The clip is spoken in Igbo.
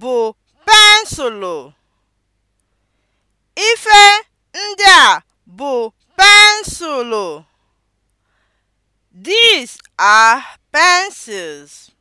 bụ pensụlụ. Ife ndị a bụ pensụlụ. These are pencils.